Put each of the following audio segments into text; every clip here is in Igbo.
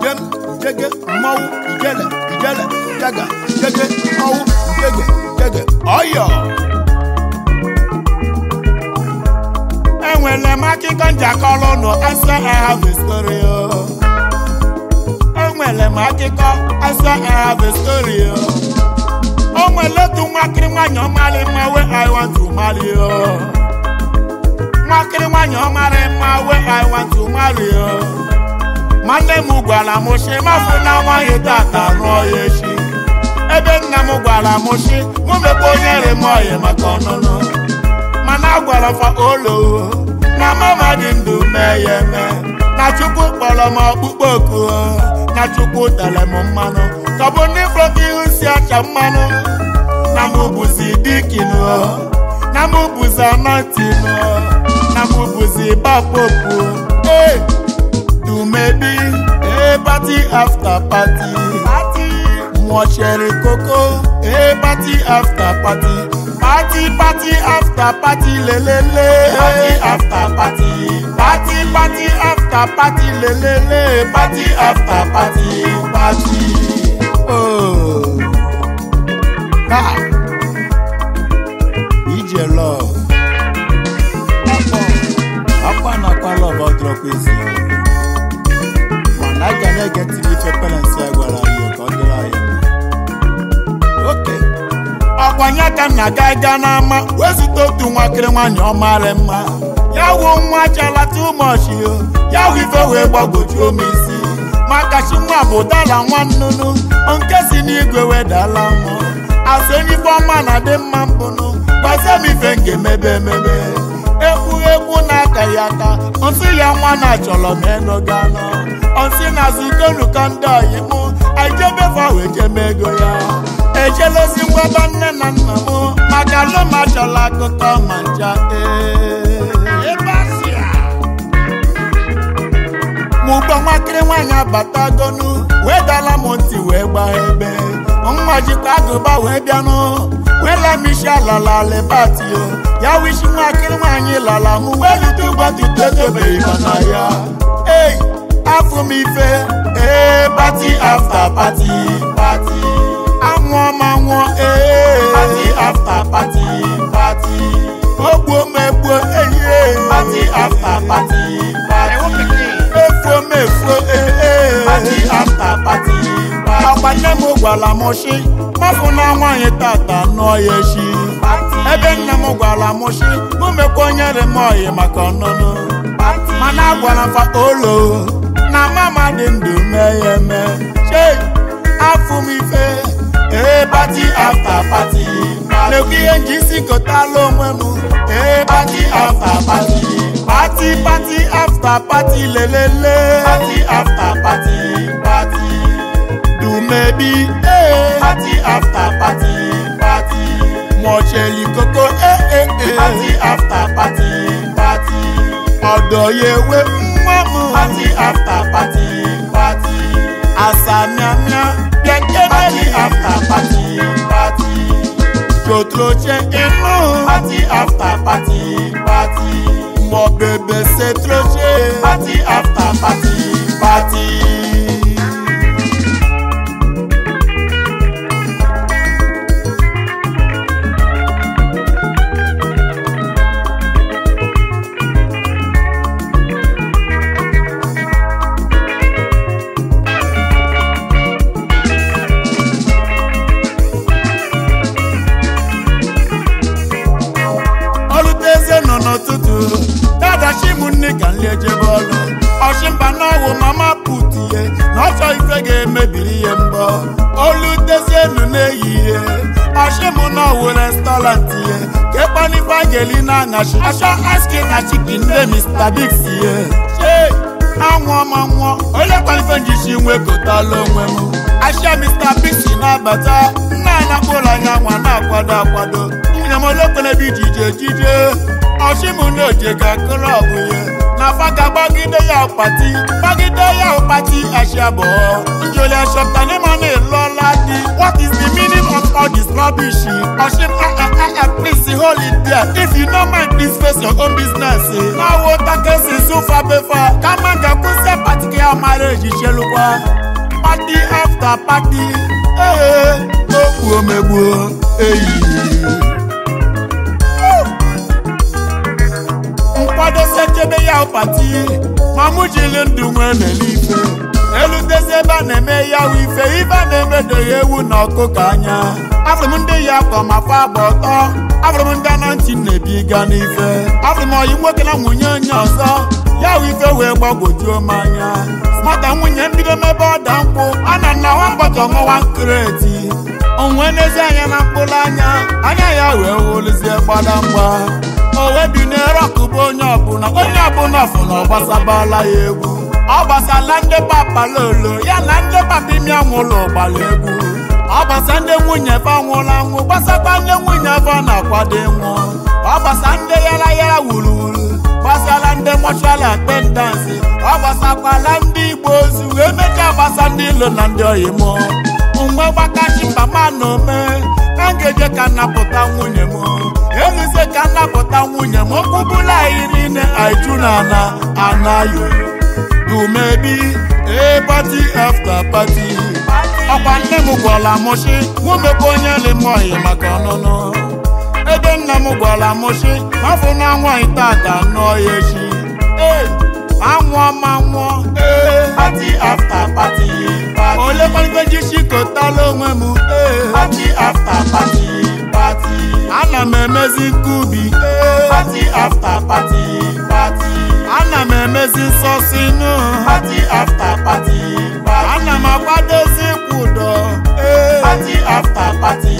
njem jege mmanwụ ijele ijele jaga jege mmanwụ jege jege ọyọ enwere m akụkọ njakọrọ ụnụ asa ahavestoryo enwere m akụkọ asa ahavestoryo e e o nwere otu nwakịrị nwanyị ọmarị mma we I want to marry you nwakịrị nwanyị ọmarị mma we I want to marry you nwanne m gwara m si mafụ na nwaghị tata rụọ ya echi ebe nna m gwara m si mụ mekwa onye remoyi maka ọnụnụ mana a gwara fa olowo na mama dị ndụ mee ya eme na chukwu kpọrọ m ọkpụkpọ oku na chukwu tere m mmanụ tọbụ ndị fọta ihu si acha mmanụ na mụ bụzi dikinu na mụ bụzi nụ na mụ bụzi bapopu ee Maybe, a party after party party wọ́n ṣẹ̀rìn kókó a party after party party party after party Le le. party after party party party after party Le le. party after party party. Oh. Ah. aga ịga n'ama wee otu nwakịrị nwaanyị ọmarị mma ya wuo nwa jala tụmọchi ya wu ife wee gbagwojuo m isi maka nwa bụ dala nwa nnụnụ nke si n'igwe wedala mmụọ asị enyi ọma na-adị mma mbụnụ gbazie m ife m ga-emebe emebe egwu na-aka ya aka nsị ya nwa na-achọrọ m enuga anọ nsị na-azụ ikonu ka ndị ọyị m aijebe fawe jeme ego ya ejelozikwa ba nne na nna m maka alụmajọla akụkọ ma nja mụgba e. nwakịrị nwaanyị abatagonu wee dala m ntị wee gbaa ebe nwa jikwa agụba wee bịanụ wee lamishi alalalibati ya wishi nwakịrị nwaanyị lala m wee lute ụgbọtụtụ edobeghị mana ya ei afụ m ife ee pati afta pati wọn máa wọn ee. Eh. Party after party party. Ogbo megbo eye. Eh. Party after party party. Efo mefo ee. Party after party party. Àgbàdé mo gbà lámọ̀ ṣe, má fún náà wọ́n yẹn tàtà náà yẹ ṣe. Ebe nna m gwara m sị, mụ mekwa onye dị m ọyị maka ọnụnụ. Mana agwara m fa olo, na mama dị ndụ mee ya eme. Chei, afụ m ife. Eh party after party. Lèkìyẹ ń jí sí kòtà ló party after party. Party party after party lelele. Party after party party. do maybe eh. party after party party. Mọ̀ṣẹ̀lì koko eh eh eh. Party after party party. Ọ̀dọ̀ yẹ wé Party after party party. Àṣà ni after party party Jotroche inú party after party party Mo bèbè ṣe troche party after party party. name una wo restaurant ye kepani na shi asha aske na chicken de mr big ye shey anwụọ ma nwụọ onye kwalife njichi nwekọtala nwe m ashia mr na-abata nna anya kpụrụ anya nwa na jije jije ọ̀ṣìmùlòdì ga kúlọ̀bù yẹn nàfàgà bágídéyà pàtí bágídéyà pàtí àṣàbọ̀ ìjòlẹ̀ ṣọ̀tà ní mọ́nì lọ́la di. what is the meaning of all this rubbish? ọ̀ṣìn ah, please hold it there if you no mind please face your own business. máa wo takẹ́sì sùfà bẹ́fà ká má gà kú sẹ́ pàtìkì àmàlẹ́ ìṣiṣẹ́ ló wá. party after party. Hey, hey, hey. Oh, oh, oh, akwadosi echebe ya ụpati ma mụ ndụ nwee n'ife elutezi ebe a na-eme ya ife ibe a na-emedoghị ewu na ọkụkọ anya afụrụ m ndị ya kọ ma fa agba ọtọ afụrụ m ndị anọ ntị na-ebiga n'ife afụrụ m ọyị nwoke na nwunye onye ọzọ ya ife wee gbagwojuo m anya maka nwunye mbido mebe ọda mkpụ a na nna nwa bọtọ mụwa nkreti onwe n'ezi anya na mkpụrụ anya anya ya wee wụlụzie gbadamgba owe bi na bụ onye ọbụla onye ọbụla ọfụ na ọ ya egwu ọ gbasala ndị papalolo ya na ndị papa imi anwụlụ gbara egwu ọ gbasa ndị nwunye be anwụrụ anwụ gbasakwa ndị nwunye be na-akwado nwụ ọ gbasa ndị yara yara wuru wuru gbasara ndị mọchual atendansi ọ gbasakwala ndị igbo ozu wee mechaa gbasa ndị ilo na ndị oyimo mgbe gbakachi mama na ome a ga-eje ka nnapụta nwunye m eluzie ka nnapụta nwunye m okwubula anyị niile aiju na anayo dumebi ee pati afta ọkwa nne m gwara mụchi nwumekwa onye limoyi maka ọnụnụ ebe nna m mafụ na tata ya echi ma nwụọ pati afta àwọn ilé pálípẹ́jì ṣì ló ń wẹ̀ mú. Eh. party after party party. ana mẹ̀mẹ́sì kubi. Eh. party after party party. ana mẹ̀mẹ́sì sọ sínú. party after party party. ana màá pàdé sí kùdọ̀. Eh. party after party.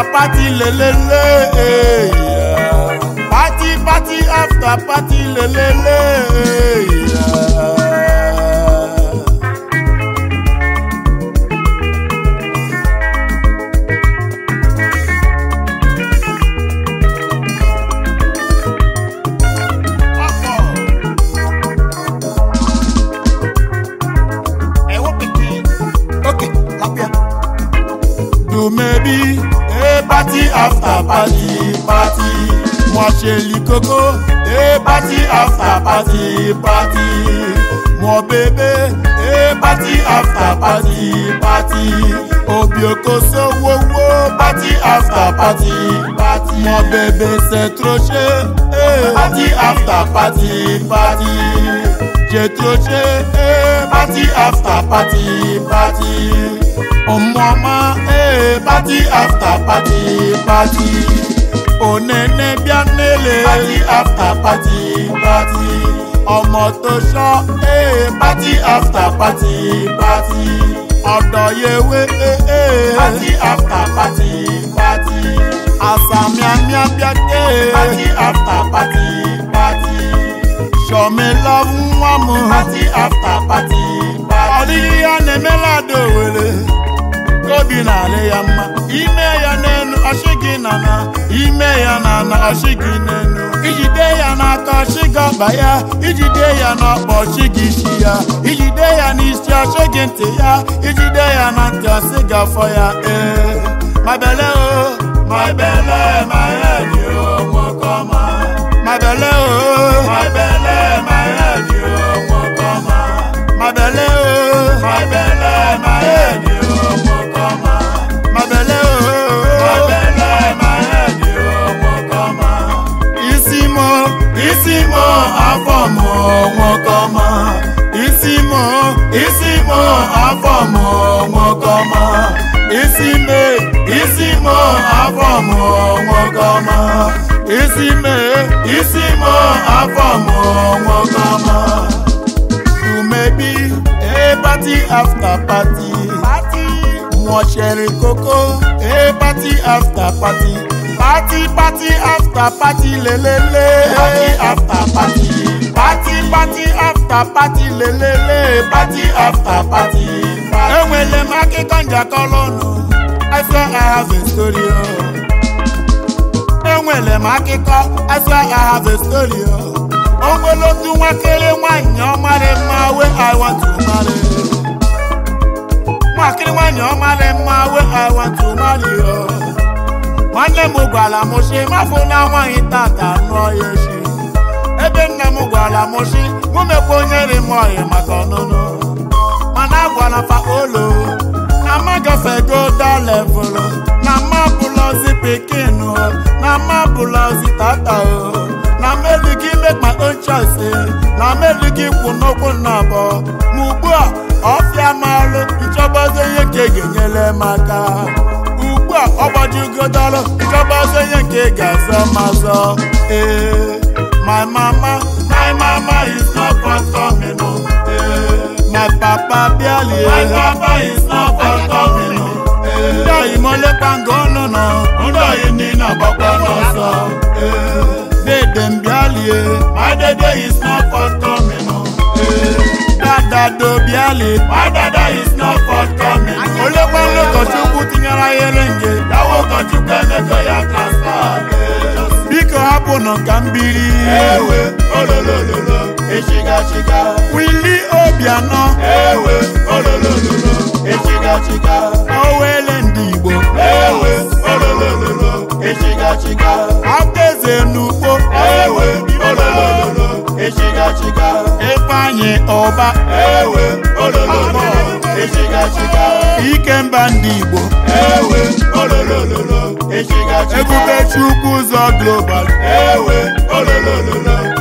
after party le, eh, Party party after party le le le. Hey, party after party, party. Mo ṣe lì kókó. Hey, party after party, party. Mo bèbè. Hey, party after party, party. Obi okoso wo wo. Party after party, party. Mo bèbè c'est trop cher. Hey, party after party, party. J'ai trop cher. Hey, party after party, party party after party party. onene bia nele. party after party party. ọmọ tó ṣọ́ ee eh, eh. party after party party. ọ̀dọ̀ yewe ee. Eh, party after party party. àṣà miamia bia dé. party after party party. sọmi love, wọn mú. party after party party. ọdí yíyá ni mélòó dòwèrè. kóbi nàlẹ́ yà má ime ya n'elu ọchị gị nana ime ya nana ọchị gị n'elu ijide ya n'aka ọchị gị ọkpa ya ijide ya n'ọkpa ọchị gị isi ya ijide ya n'isi ọchị gị ntị ya ijide ya na ntị ọsị gị afọ ya ee ma bele o oh, ma bele ma ya dị o nwokọma o ma nwokọma isi mụ isi mụ afọ mụ nwokọma isi me isi mụ afọ mụ nwokọma isi me isi mụ afọ mụ nwokọma umebi e party after party nwọchiri koko e party after party party party after party le le le party after party. party party after party lelele party after party. enwere m akụkọ njakọ lọnụ I swear I have a story o. Oh. enwere m akụkọ I swear I have a story o. Oh. o nwere otu nwakere ọmarị mma wey I want to marry. nwakere nwaanyị ọmarị mma wey I want to marry oh. nwanne m gwara m sị mafụ na nwaanyị tata nụọ ya echi ebe nna m gwara m si mụ mekwa onye ri m oyi maka ọnụnụ mana agwara fa olo na ma gafego dalevụl na ma bụlọzi pikin na ma bụlọzi tata na m elughị make my na m elughị kwụ n'okwu nna ma ugbu a ọfịa maalụ ihe ka ga-enyere m aka ugbu a ọ gbajigodalụ nchọbazi ihe nke ga-azọ mazọ ee My mama, my mama is not comfortable. No. Yeah. My papa barely. My papa is not comfortable. Ndọ̀ ìmọ̀lẹ́ pàǹgọ́ lọ́nà, ndọ̀ ìní nà na náà sọ. Dédé ń bíálì e, my dede is not comfortable. No. Eh. Dada do bíálì, my dada is not comfortable. Olé pàǹlẹ̀ kọ̀ọ̀tì kú ti yàrá yẹlẹ́ǹgẹ̀, yàwó kọ̀ọ̀tì pẹ̀lẹ́ kọ̀ yà kàṣà. ọkụ ka mbili ewe ololololo echigachiga wili obianọ ewe ololololo echigachiga owele ndị igbo ewe ololololo echigachiga abdeze n'ugbo ewe ololololo echigachiga ifeanyị ọba ewe ololololo ike mba ndị igbo ewe ololololo echigachiga Chukwu Global. Ewe, ololololo,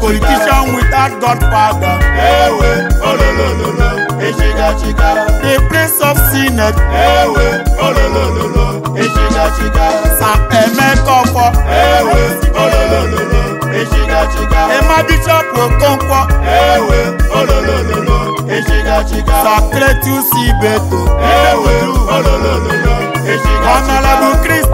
Politician without godfather. Ewe, ololololo, eshiga chika. The Prince of Sinet. Ewe, ololololo, eshiga chika. Sam Emekofo. Ewe, ololololo, eshiga chika. Emma Bishop Okonkwo. Ewe, ololololo, eshiga chika. Sacred Tusi Beto. Ewe, ololololo,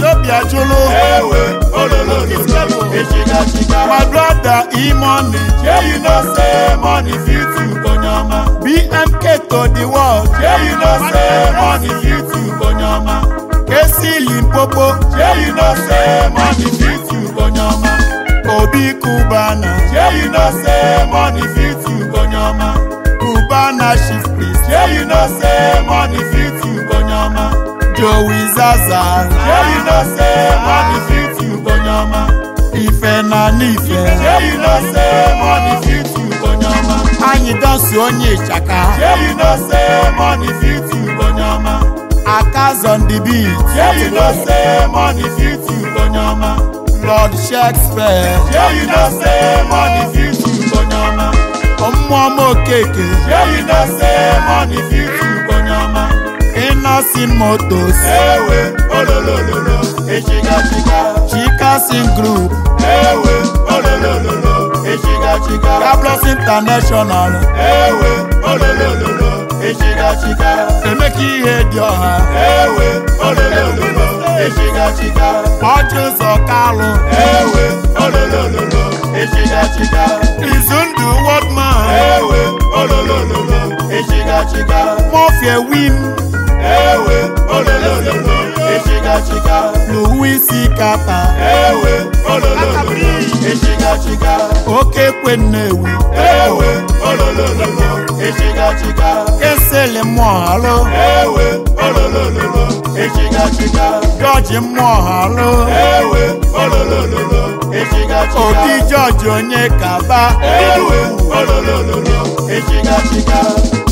Ethiopia Jolo. Ewe, Ololo, Kiskepo, Ejiga, Jiga. My brother, E-Money. Yeah, you know, say money fit you, Konyama. BMK to the world. Yeah, you know, say money fit you, Konyama. Kesi Limpopo. Yeah, you know, say money fit you, Konyama. Obi Cubana. Yeah, you know, say money fit you, Konyama. Cubana chief priest. Yeah, you know, say money fit you, Joe is Zaza. Yeah, you know, say, money fit you, Bonyama. Ife na n'ife. Yeah, you know, say, money fit you, Bonyama. Anyị dọsi onye ịchaka. Yeah, you know, say, money fit you, Bonyama. Akas on the beat. Yeah, you know, say, money fit you, Bonyama. Lord Shakespeare. Yeah, you know, say, money fit you, Bonyama. Ọmụọma Okeke. Yeah, you know, say, money fit you, chikasin motos ewe ololololo echigachika chikasin group ewe ololololo echigachika kablos international ewe ololololo echigachika emeka ihe dị ọha ewe ololololo echigachika ọchụzọ ewe ololololo e Izundu izundụ man ewe ololololo echigachika win ewe ololololo echikachika n'ụwa isi kata ewe ololololo echikachika oke kwe nnewi ewe ololololo echikachika kesele mmụọ halụ ewe ololololo echikachika jọji George halụ ewe ololololo echikachika obi George onye kaba ewe ololololo echikachika